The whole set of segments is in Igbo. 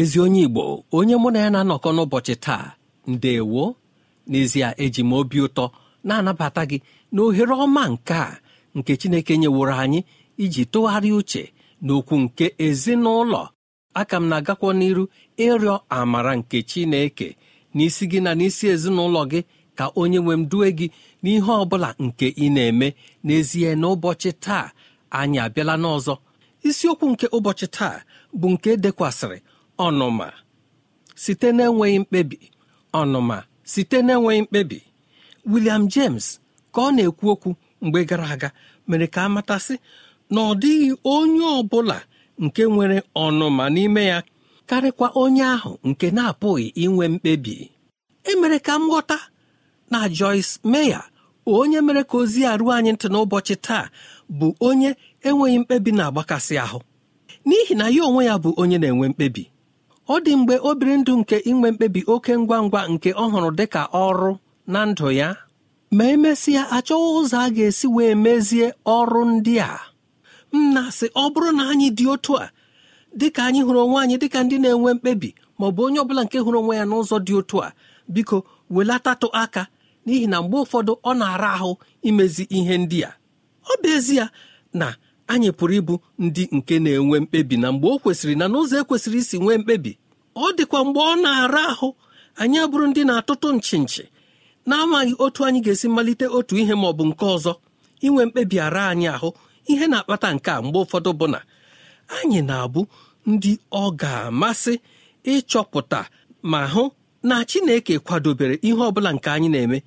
ezi onye igbo onye mụ na ya na-anọkọ n'ụbọchị taa ndewo n'ezie eji m obi ụtọ na-anabata gị na ohere ọma nke a nke chineke nyeworo anyị iji tụgharịa uche n'okwu nke ezinụlọ aka m na-agakwa n'iru ịrịọ amara nke chineke n'isi gị na n'isi ezinụlọ gị ka onye nwe m due gị n'ihe ọ bụla nke ị na-eme n'ezie n'ụbọchị taa anyị abịala n'ọzọ isiokwu nke ụbọchị taa bụ nke e dekwasịrị ọnụma site na-enweghị mkpebi ọnụma site na-enweghị mkpebi William James ka ọ na-ekwu okwu mgbe gara aga mere ka a matasị na ọ dịghị onye ọ bụla nke nwere ọnụma n'ime ya karịkwa onye ahụ nke na-apụghị inwe mkpebi emere ka m ghọta na Joyce Meya, onye mere ka ozi a ruo anyị ntị n'ụbọchị taa bụ onye enweghị mkpebi na-agbakasị ahụ n'ihi na ya onwe ya bụ onye na-enwe mkpebi ọ dị mgbe obiri ndụ nke inwe mkpebi oke ngwa ngwa nke ọ hụrụ dị ka ọrụ na ndụ ya ma emesịa achọghị ụzọ a ga-esi wee mezie ọrụ ndị a Nna sị ọ bụrụ na anyị dị otu a ka anyị hụrụ onwe anyị dịka ndị na-enwe mkpebi ma ọ bụ onye ọbụla nke hụrụ onwe ya n'ụzọ dị otu a biko welatatụ aka n'ihi na mgbe ụfọdụ ọ na-ara ahụ imezi ihe ndị a ọ bụ ezie na anyị pụrụ ịbụ ndị nke na-enwe mkpebi na mgbe o kwesịrị na n'ụzọ ekwesịrị isi nwee mkpebi ọ dịkwa mgbe ọ na-ara ahụ anyị abụrụ ndị na-atụtụ nchi nchi na-amaghị otu anyị ga-esi malite otu ihe ma ọ bụ nke ọzọ inwe mkpebi ara anyị ahụ ihe na-akpata nke a mgbe ụfọdụ bụ na anyị na-abụ ndị ọ ga-amasị ịchọpụta ma hụ na Chineke kwadobere ihe ọ bụla nke anyị na-eme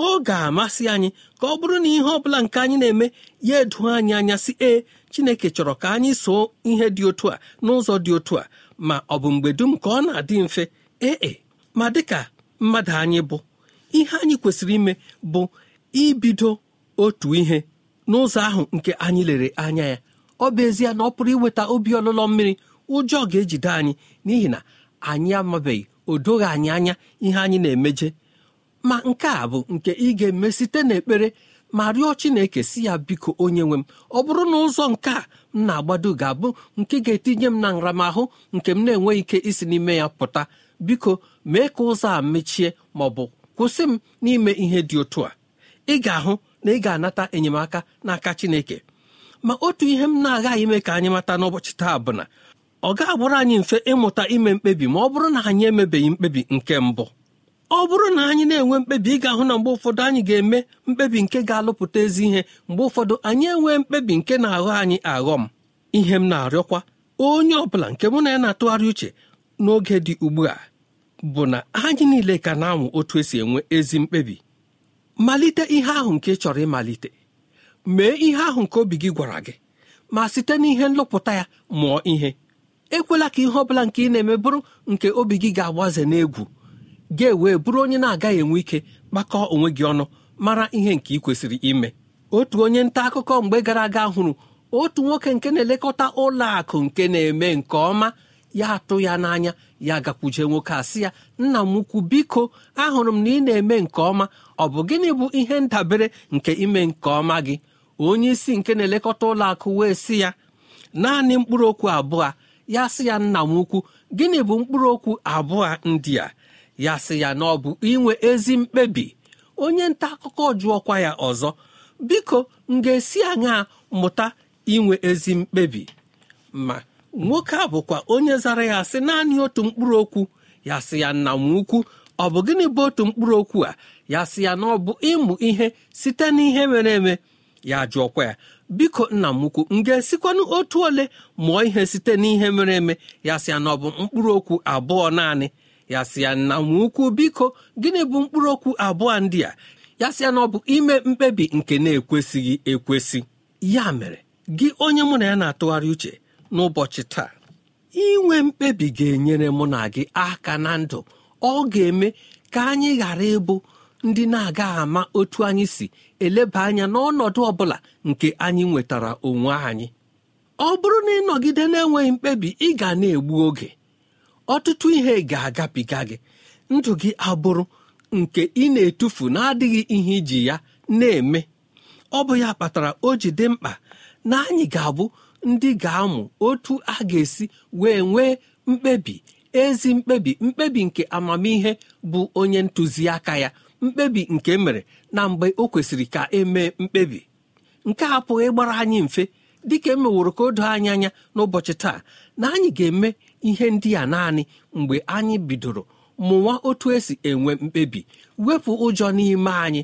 ọ ga-amasị anyị ka ọ bụrụ na ihe ọ bụla nke anyị na-eme ya edu anyị anya si ee Chineke chọrọ ka anyị soo ihe dị otu a n'ụzọ dị otu a ma ọ bụ mgbe dum ka ọ na-adị mfe ee e, ma dịka mmadụ anyị bụ ihe anyị kwesịrị ime bụ ibido otu ihe n'ụzọ ahụ nke anyị lere anya ya ọ bụ ezie na ọ pụrụ iweta obi ọlụlọ mmiri ụjọ ga-ejide anyị n'ihi na anyị amabeghị o doghị anyị anya ihe anyị na-emeje ma nke a bụ nke ị ga-eme site n'ekpere ma rịọ Chineke si ya biko onye nwe m ọ bụrụ na ụzọ nke a m na-agbado ga-abụ nke ga-etinye m na nramahụ nke m na-enweghị ike isi n'ime ya pụta biko mee ka ụzọ a mechie ma ọ bụ kwụsị m n'ime ihe dị otu a ị ga-ahụ na ị ga-anata enyemaka n'aka Chineke ma otu ihe m na-agaghị ime ka anyị mata n'ụbọchị taa bụ na ọ ga abụrụ anyị mfe ịmụta ime mkpebi ma ọ bụrụ na anyị emebeghị mkpebi nke mbụ ọ bụrụ na anyị na-enwe mkpebi ị ga-ahụ na mgbe ụfọdụ anyị ga-eme mkpebi nke ga-alụpụta ezi ihe mgbe ụfọdụ anyị enwee mkpebi nke na-aghọ anyị aghọ m ihe m na-arịọkwa onye ọ bụla nke mụ na ya na-atụgharị uche n'oge dị ugbu a bụ na anyị niile ka na anwụ otu esi enwe ezi mkpebi malite ihe ahụ nke ị chọrọ ịmalite mee ihe ahụ nke obi gị gwara gị ma site n'ihe nlụpụta ya mụọ ihe ekwela ka ihe ọ bụla nke ị na-eme bụrụ nke obi gị ga-agbaze n'egwu ga-ewe bụrụ onye na-agaghị enwe ike kpakọọ onwe gị ọnụ mara ihe nke ị kwesịrị ime otu onye nta akụkọ mgbe gara aga hụrụ otu nwoke nke na-elekọta ụlọ akụ nke na-eme nke ọma ya atụ ya n'anya ya gakwuje nwoke asị ya nna m ukwu biko ahụrụ m na ị na-eme nke ọma ọ bụ gịnị bụ ihe ndabere nke ime nke ọma gị onye isi nke na-elekọta ụlọ akụ wee sị ya naanị mkpụrụ okwu abụọ ya sị ya nna m ukwu gịnị bụ mkpụrụ okwu abụọ ndị a ya sị ya na ọ bụ inwe ezi mkpebi onye nta akụkọ jụọkwa ya ọzọ biko m ga-esi aṅa mụta inwe ezi mkpebi ma nwoke a bụkwa onye zara ya sị naanị otu mkpụrụ okwu ya sị ya nna m ukwu ọ bụ gịnị bụ otu mkpụrụ okwu a ya sị ya na ọ bụ ịmụ ihe site n'ihe mere eme ya jụọkwa ya biko nna m ukwu m ga-esikwanụ otu ole mụọ ihe site n'ihe mere eme ya sị ya na ọ bụ mkpụrụ okwu abụọ naanị ya sị ya na nwa ukwu biko gịnị bụ mkpụrụ okwu abụọ ndị a ya sị ya na ọ bụ ime mkpebi nke na-ekwesịghị ekwesị ya mere gị onye mụ na ya na-atụgharị uche n'ụbọchị taa inwe mkpebi ga-enyere mụ na gị aka na ndụ ọ ga-eme ka anyị ghara ịbụ ndị na aga ama otu anyị si eleba anya n'ọnọdụ ọ bụla nke anyị nwetara onwe anyị ọ bụrụ na ịnọgide na-enweghị mkpebi ị ga na-egbu oge ọtụtụ ihe ga-agabiga gị ndụ gị abụrụ nke ị na-etufu na-adịghị ihe iji ya na-eme ọ bụ ya kpatara o ji dị mkpa na anyị ga-abụ ndị ga-amụ otu a ga-esi wee nwee mkpebi ezi mkpebi mkpebi nke amamihe bụ onye ntụziaka ya mkpebi nke e mere na mgbe o kwesịrị ka emee mkpebi nke a gbara anyị mfe dịka emeworo ka anyị anya n'ụbọchị taa na ga-eme ihe ndị a naanị mgbe anyị bidoro mụwa otu esi enwe mkpebi wepụ ụjọ n'ime anyị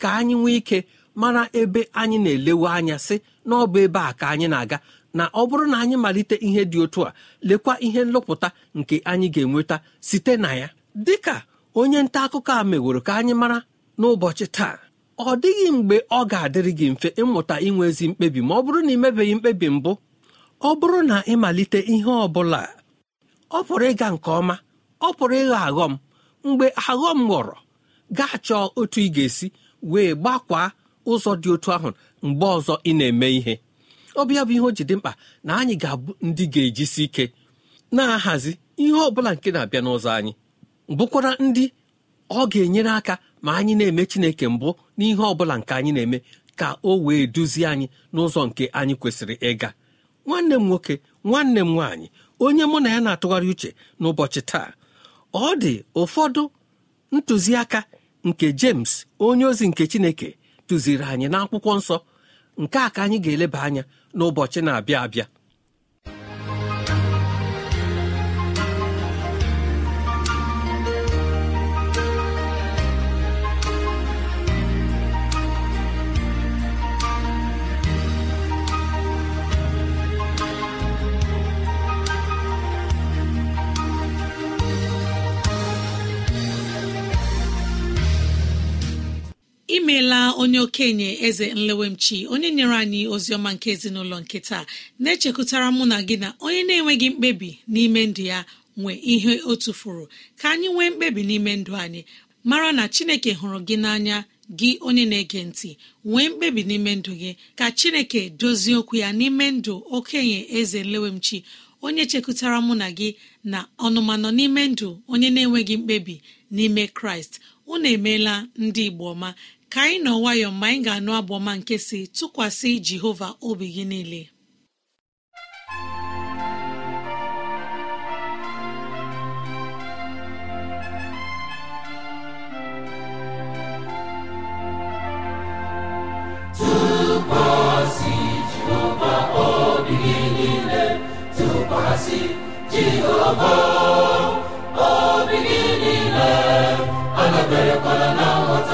ka anyị nwee ike mara ebe anyị na-elewe anya sị na ọ bụ ebe a ka anyị na-aga na ọ bụrụ na anyị malite ihe dị otu a lekwa ihe nlọpụta nke anyị ga-enweta site na ya dịka onye nta akụkọ a meworo ka anyị mara n'ụbọchị taa ọ dịghị mgbe ọ ga-adịrị gị mfe ịmụta inwe ezi mkpebi ma ọ bụrụ na ịmebeghị mkpebi mbụ ọ bụrụ na ịmalite ihe ọ bụla ọ pụrụ ịga nke ọma ọ pụrụ ịghọ aghọm mgbe aghọm ghọrọ gaa chọọ otu ị ga-esi wee gbakwaa ụzọ dị otu ahụ mgbe ọzọ ị na-eme ihe ọbịa bụ ihe o ji dị mkpa na anyị ga-abụ ndị ga-ejisi ike na-ahazi ihe ọ bụla nke na-abịa n'ụzọ anyị bụkwara ndị ọ ga-enyere aka ma anyị na-eme chineke mbụ n'ihe ọ bụla nke anyị na-eme ka o wee duzie anyị n'ụzọ nke anyị kwesịrị ịga nwanne m nwoke nwanne m nwaanyị onye mụ na ya na-atụgharị uche n'ụbọchị taa ọ dị ụfọdụ ntụziaka nke James onye ozi nke Chineke tụziri anyị n'akwụkwọ nsọ nke a ka anyị ga-eleba anya n'ụbọchị na-abịa abịa imeela onye okenye eze nlewemchi onye nyere anyị ozi ọma nke ezinụlọ nke taa na-echekụtara mụ na gị na onye na-enweghị mkpebi n'ime ndụ ya nwe ihe o tufuru ka anyị nwee mkpebi n'ime ndụ anyị mara na chineke hụrụ gị n'anya gị onye na-ege ntị nwee mkpebi n'ime ndụ gị ka chineke dozie okwu ya n'ime ndụ okenye eze nlewemchi onye chekụtara mụ na gị na ọnụmanọ n'ime ndụ onye na-enweghị mkpebi n'ime kraịst unu emeela ndị igbo ọma ka anyị nọ nwayọọ mgbe anyị ga-anụ abụọ ọma nke si tụkwasị Jehova obi gị niile Jehova obi gị niile anaberekwala na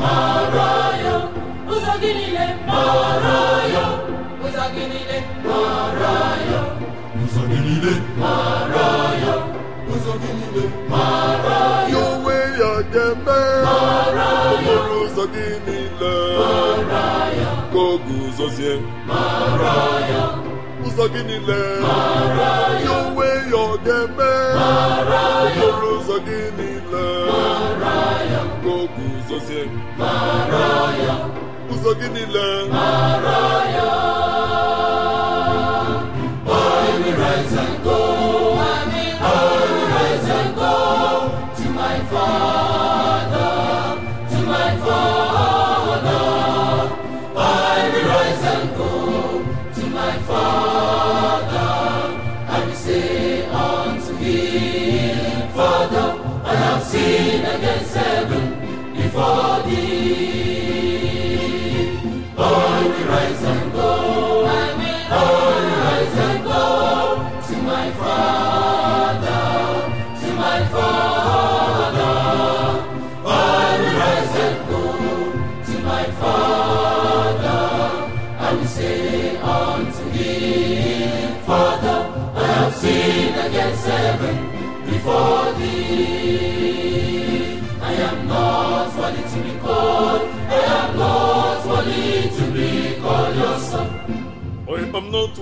mara ya ụzọ gị niile mara ya ụzọ gị niile mara ya ụzọ gị niile mara ya ụzọ gị niile mara ya onwe ya ga-eme okporo ụzọ gị niile mara ya ka ụzọ guzozie mara ya ụzọ gị niile mara ya onwe ya ọ ga-eme okporo ụzọ gị niile mara ya ka o guzozie mara ya ụzọ gị niile mara ya for i am not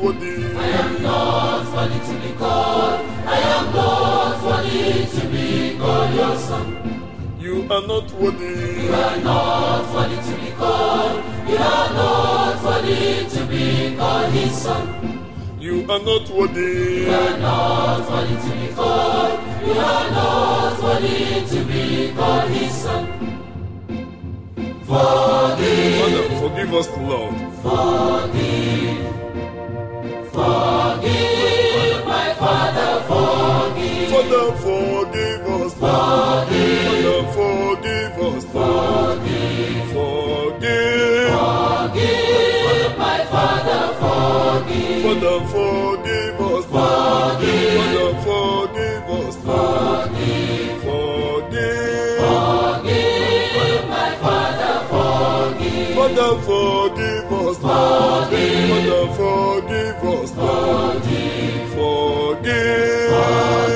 be called your son You are not worthy. You are not worthy to be called. You are not worthy to be called His son. You are not worthy. You are not worthy to be called. You are not worthy to be called His son. Forgive. forgive us, Lord. Forgive. Forgive my Father, forgive. forgive Forgive. forgive Forgive. Forgive. Forgive forgive. forgive Forgive. forgive my Father, forgive. forgive, Father, forgive us,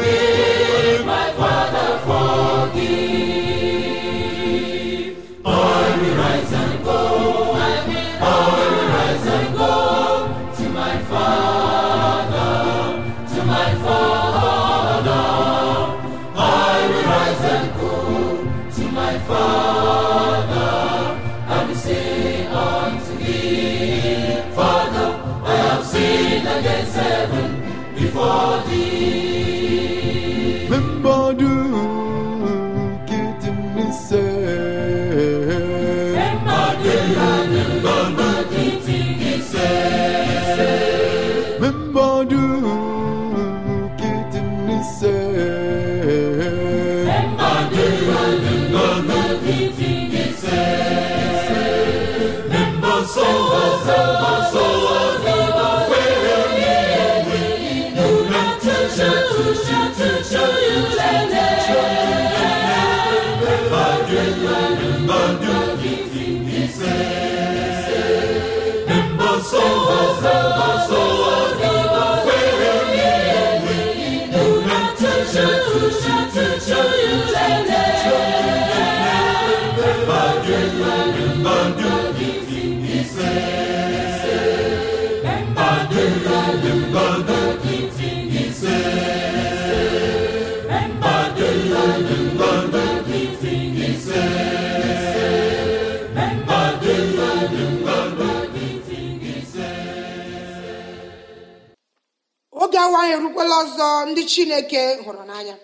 ya nwanyị erukwala ọzọ ndị chineke hụrụ n'anya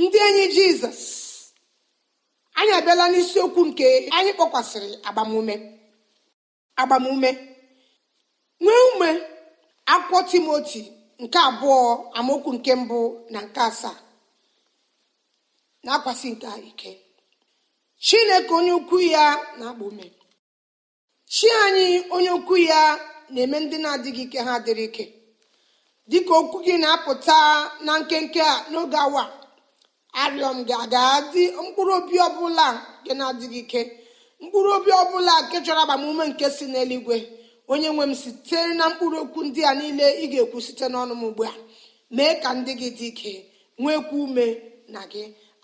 ndị enyi jizọs anyị abịala n'isiokwu nke anyị kpọkwasịrị agbamume agbamume nwee ume akwụkwọ timoti nke abụọ amaokwu nke mbụ na nke asaa na-akwasị nke ike chineke onye ukwu ya na akpọ ume chi anyị onye ukwu ya na-eme ndị na-adịghị ike ha dịrị ike dịka okwu gị na-apụta na nkenke a n'oge awa arịọ m gị aga dị mkpụrụ obi ọbụla nke na-adịghị ike mkpụrụ obi ọbụla nke chọrọ agbamume nke si n'eluigwe onye nwe m site na mkpụrụ okwu ndị a niile ị ga-ekwu site n'ọnụ m ugbu a mee ka ndị gị dị ike nwekwa ume na gị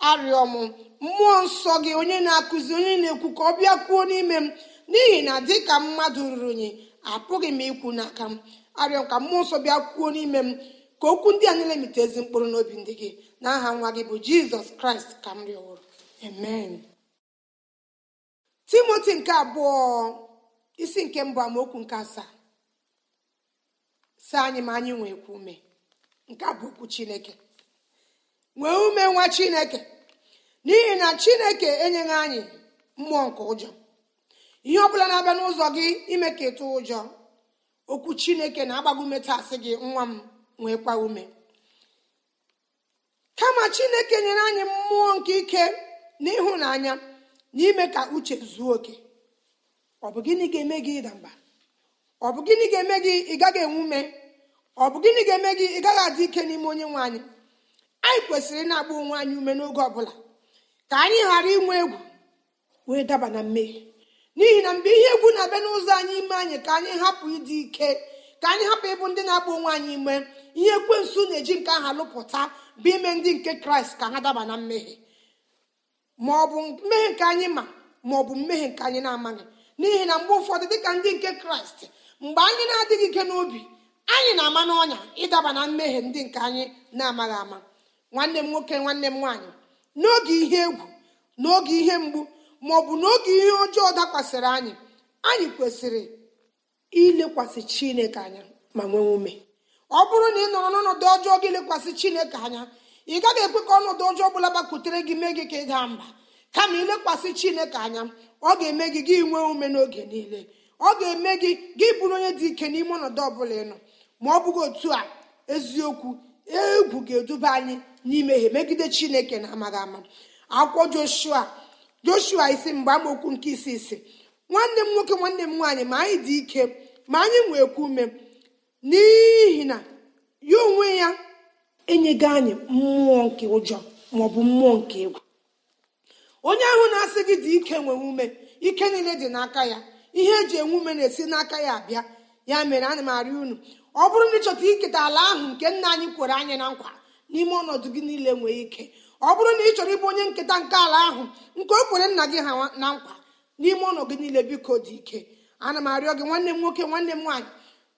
arịọ m mmụọ nsọ gị onye na-akụzi onye na-ekwu ka ọ bịa kwuo n'ime m n'ihi na dịka mmadụ ruru unyi apụghị m ikwu n'aka m arịọ ka mmụọ nsọ bịa kwuo n'ime m ka okwu ndị a niile mite ezi mkpụrụ n'obi ndị gị n'aha nwa gị bụ jizọs kraịst ka m rịọwụrụ amen timoti nke abụọ isi nke mbụ amaokwu nke asaa si anyị ma anyị nwee ume nke a bụ okwu chineke nwee ume nwa chineke n'ihi na chineke enyeghị anyị mmụọ nke ụjọ ihe ọ bụla na-abịa n'ụzọ gị ime ka ịtụ ụjọ okwu chineke na-agbago ume tasị gị nwa m nwekwa ume kama chineke nyere anyị mmụọ nke ike na ịhụnanya na ime ka uche zuo oke ọ bụ gịnị ga-eme gị ịda mba ọ bụ gịnị ga-eme gị ị gaghị enwe ume ọ bụ gịnị ga-eme gị ị gaghị adị ike n'ime onye nwe anyị anyị kwesịrị ịna-agba onwe anyị ume n'oge ọbụla ka anyị ghara inwe egwu wee daba na mmehie n'ihi na mgbe ihe egwu na-abịa n'ụzọ anyị ime anyị ka anyị hapụ ịdị ike ka anyị hapụ ịbụ ndị na-agba onwe anyị ime ihe ekwensu na-eji nke aha lụpụta bụ ime ndị nke kraịst ka ha daba na mmehie ma ọ bụ mmehie nke anyị ma ma ọ bụ mmehie nke anyị na-amaghị n'ihi na mgbe ụfọdụ dịka ndị nke kraịst mgbe anyị na-adịghị ike n'obi anyị na-ama n'ọnya ịdaba na mmehie ndị nke anyị na-amaghị ama nwanne m nwoke nwanne m nwaanyị n'oge ihe egwu n'oge ihe mgbu bụ n'oge ihe ọjọọ dakwasịrị anyị anyị kwesịrị ilekwasị chineke anya ma nwee ume ọ bụrụ na ị nọrọ n'ọnọdụ ọjọọ gị lekwasị chineke anya ị gaghị ekwe ka ọnọdụ ọjọọ ọbụla gbakwutere gị mee gị ka ị daa mba kama ilekwasị chineke anya ọ ga-eme gị gị nwee ume n'oge niile ọ ga-eme gị gị bụrụ onye dị ike n'ime ọnọdụ ọbụla ịnọ ma ọ bụghị otu a eziokwu egwu ga-eduba anyị n'imehie megide chineke na amaghị ama akwụkwọ joshua joshua isi mgbe amaokwu nke isi isi nwanne m nwoke nwanne m nwaanyị ma anyị dị ike ma anyị nwekwa ume n'ihi na ya onwe ya enyego anyị mmụọ nke ụjọ maọbụ mmụọ nke egwu onye ahụ na-asị gị dị ike nwee ume ike niile dị n'aka ya ihe eji enwe ume na-esi n'aka ya abịa ya mere na m arị unu ọ bụrụ na ịchọta iketa ala ahụ nke nna anyị kwere anyị na nkwa n'ime ọnọdụ gị niile nwee ike ọ bụrụ na ị chọrọ ịbụ onye nketa nke ala ahụ nke o kwere nna gị ha na nkwa n'ime ụlọ gị niile biko dị ike ana m arịọ gị nwanne m nwoke nwanne m nwaanyị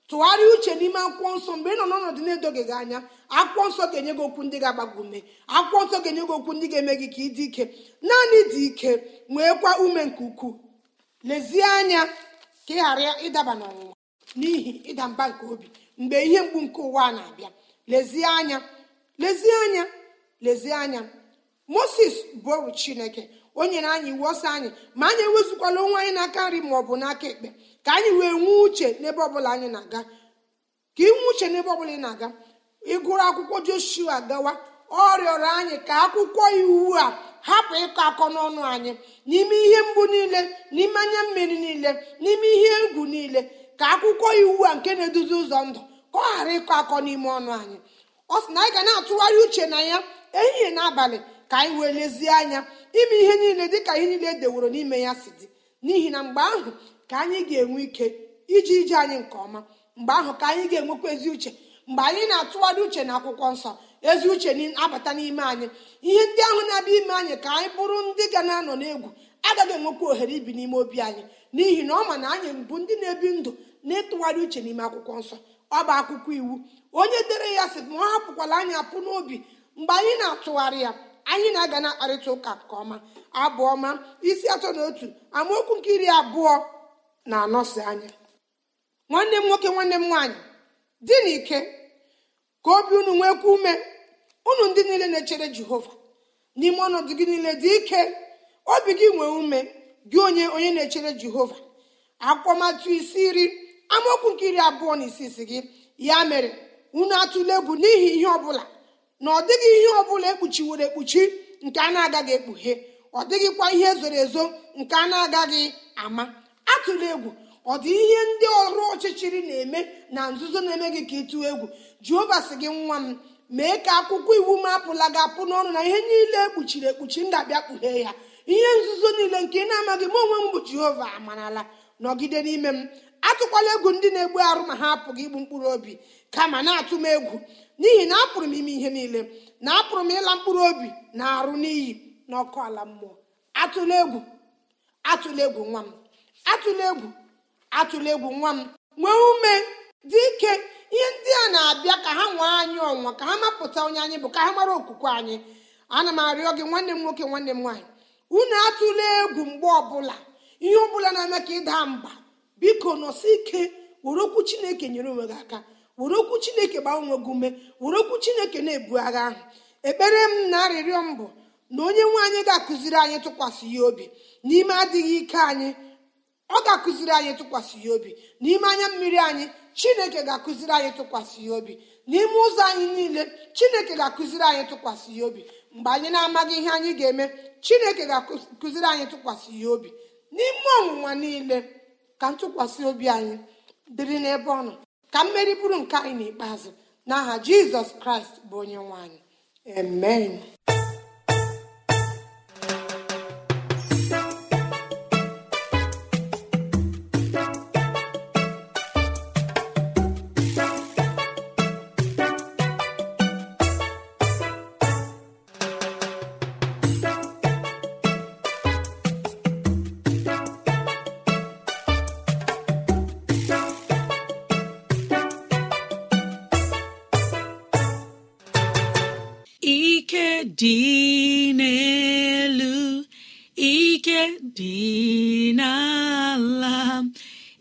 tụgharịa uche n'ime akwụkwọ nsọ mgbe ị nọ n'ọnọdụ na-edoghị gị anya akwụkwọ nsọ ga-enye gị okwu ndị ga-agbago ume akwụkwọ nsọ ga-enye gị okwu ndị ga-eme gị ka ị dị ike naanị dị ike nweekwa ume nke ukwuu lezie anya ka ị ghara ịdaba n'ọnwụnwa n'ihi ịda mba nke obi mgbe ihe mgbu nke ụwa na-abịa lezie anya lezie anya lezie anya moses bụ chineke o nyere anyị iwu ọsọ anyị ma anyị ewezukwala onwe anyị n'aka nri ma ọ bụ n'aka ekpe ka anyị wee nwee uche n'ebe ọbụla anyị na-aga ka ị uche n'ebe ọbụla ị na-aga ịgụrụ akwụkwọ joshua gawa ọ rịọrọ anyị ka akwụkwọ iwu a hapụ ịkọ akọ n'ọnụ anyị n'ime ihe mgbu niile n'ime anya mmiri niile n'ime ihe egwu niile ka akwụkwọ iwu a nke na-eduzi ụzọ ndụ ka ọ ghara ịkọ akọ n'ime ọnụ anyị ọ sị na anyị ga na-atụgharị uche na ya ehihie na abalị ka anyị wee lezie anya ime ihe niile dịka ihe niile edeworo n'ime ya si dị n'ihi na mgbe ahụ ka anyị ga-enwe ike iji ije anyị nke ọma mgbe ahụ ka anyị ga-enwekwa ezi uche mgbe anyị na-atụgharị uche na akwụkwọ nsọ ezi uche abata n'ime anyị ihe ndị ahụ na-abịa ime anyị ka anyị bụrụ ndị ga na-anọ n'egwu agaghị enwekwa ohere ibi n'ime obi anyị n'ihi na ọ ma na anyị bụ ndị na-ebi ndụ na-etụgharị uche n'ime akwụkwọ nsọ ọ bụ akwụkwọ iwu onye dere ya sị ma ọ hapụkwala anyị apụ n'obi mgbe anyị na-atụgharị ya anyị na-aga na akparịta ụka nke ọma abụọ ma isi atọ na otu amaokwu nke iri abụọ na anọsi anya nwanne m nwoke nwanne m nwaanyị dị n'ike ka obi unu nwekwa ume unu ndị niile na-echere jehova n'ime ọnọdụ gị niile dị ike obi gị nwee ume gị onye onye na-echere jehova akwụkwọmatụ isi iri amaokwu nke iri abụọ na isi isi gị ya mere unu atụla egwu n'ihi ihe ọ bụla na ọ dịghị ihe ọ bụla ekpuchiworo ekpuchi nke a na-agaghị ekpughe ọ dịghịkwa ihe zoro ezo nke a na-agaghị ama atụla egwu ọ dị ihe ndị ọrụ ọchịchịrị na-eme na nzuzo na-eme gị ka ịtụọ egwu jehova sị gị nwa m mee ka akwụkwọ iwu m apụla gị apụ n'ọnụ na ihe niile ekpuchiri ekpuchi m abịa kpughee ya ihe nzuzo niile nke ị na-amaghị m onwe m bụ jehova amarala nọgide n'ime m atụkwala egwu ndị na-egbu arụ ma ha apụghị igbu mkpụrụ obi kama na-atụ m egwu n'ihi na apụrụ m ime ihe niile na apụrụ m ịla mkpụrụ obi na arụ n'iyi na ọkụ ala mmụọ atụla egwu atụla egwu nwa m atụla egwu atụla egwu nwa m nwee ume dị ike ihe ndị a na-abịa ka ha nwee anyị ọnwa ka ha mapụta onye anyị bụ ka ha mara okwukwe anyị ana m arịọ gị nwanne m nwoke nwanne m nwaanyị unu atụla egwu mgbe ọbụla ihe ọ bụla na-eme ka ịda mba biko nọsi ike were okwu chineke nyere onwe gị aka were okwu chineke gbaa onwe gị ume were okwu chineke na-ebu agha ahụ ekpere m na arịrịọ m bụ na onye nwe anyị ga-akụziri anyị tụkwasị ya obi n'ime adịghị ike anyị ọ ga-akụziri anyị tụkwasị ya obi n'ime anya mmiri anyị chineke ga-akụziri anyị tụkwasị ya obi n'ime ụzọ anyị niile chineke ga-akụziri anyị tụkwasị ya obi mgbe anyị na-amaghị ihe anyị ga-eme chineke ga-akụziri anyị tụkwasị ya obi n'ime ọnwụnwa niile ka ntụkwasị obi anyị dịrị n'ebe ọ nọ ka mmeri bụrụ nke anyị n'ikpeazụ n'aha jizọs kraịst bụ onye nwanyị. anyị amen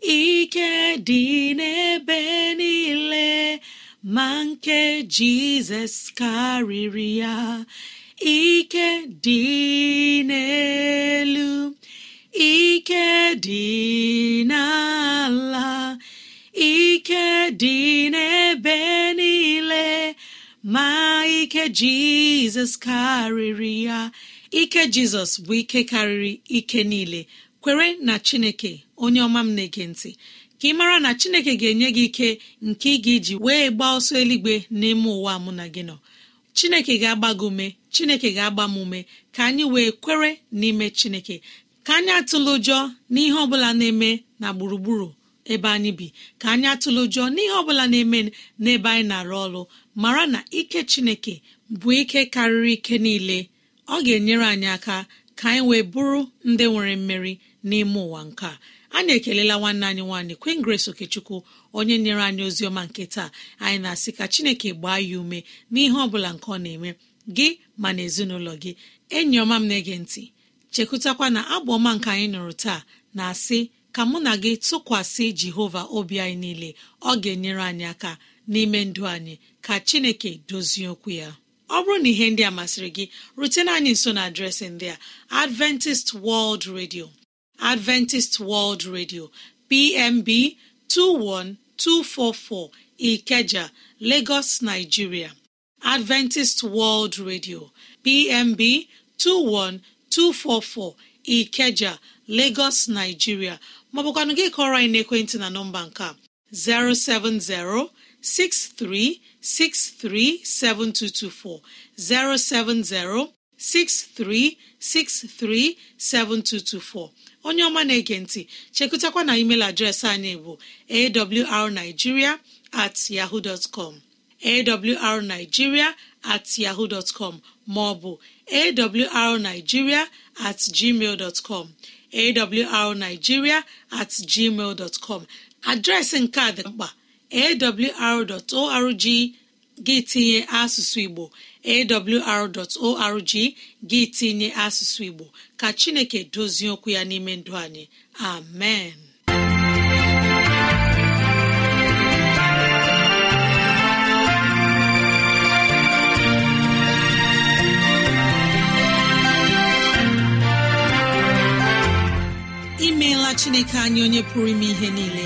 ike dị n'ebe niile ma nke jizọs karịrị ya ike dị n'elu ike dị n'ala ike dị n'ebe niile ma ike jizọs karịrị ya ike jizọs bụ ike karịrị ike niile kwere na chineke onye ọma m na-ege ntị ka ị mara na chineke ga-enye gị ike nke ị ga-eji wee gbaa ọsọ eluigwe n'ime ụwa mụ na gị nọ chineke ga-agba gị ume chineke ga-agba m ume ka anyị wee kwere n'ime chineke ka anyị atụla ụjọ n'ihe ọ bụla na-eme na gburugburu ebe anyị bi ka anyị atụla ụjọ n'ihe ọ bụla na-eme n'ebe anyị na-arụ ọrụ mara na ike chineke bụ ike karịrị ike niile ọ ga-enyere anyị aka ka anyị wee bụrụ ndị nwere mmeri n'ime ụwa nke a anyị ekelela nwanne anyị nwaanyị Queen Grace Okechukwu onye nyere anyị ozi ọma nke taa anyị na-asị ka Chineke gbaa ya ume n'ihe ọ bụla nke ọ na-eme gị ma na ezinụlọ gị enyi ọma m na-ege ntị chekwutakwa na abụ ọma nke anyị nụrụ taa na-asị ka mụ na gị tụkwasị Jehova obi anyị niile ọ ga-enyere anyị aka n'ime ndụ anyị ka Chineke dozie okwu ya ọ bụrụ na ihe ndị a masịrị gị rutena anyị nso na adreesị ndị a adventist world radio adventist world radio pmb 21244 ikeja lagos nigeria adventist world radio pmb 21244 ikeja lagos nigeria maọbụkwanụ gị kọrọ anyị n'ekwentị na nọmba nke a 070 63637224 07063637224 onye ọma na-ege ntị chekụtakwa na email adreesị anyị bụ awrnigeria at yahoo dot com awrnigeria at yahoo dot com maọbụ awrnigeria at gmail dot com awrnigeria at gmail dot com adreesị nke a dị mkpa awr.org gị tinye asụsụ Igbo awr.org gị tinye asụsụ Igbo ka Chineke dozie okwu ya n'ime ndụ anyị amen imeela Chineke anyị onye pụrụ ime ihe niile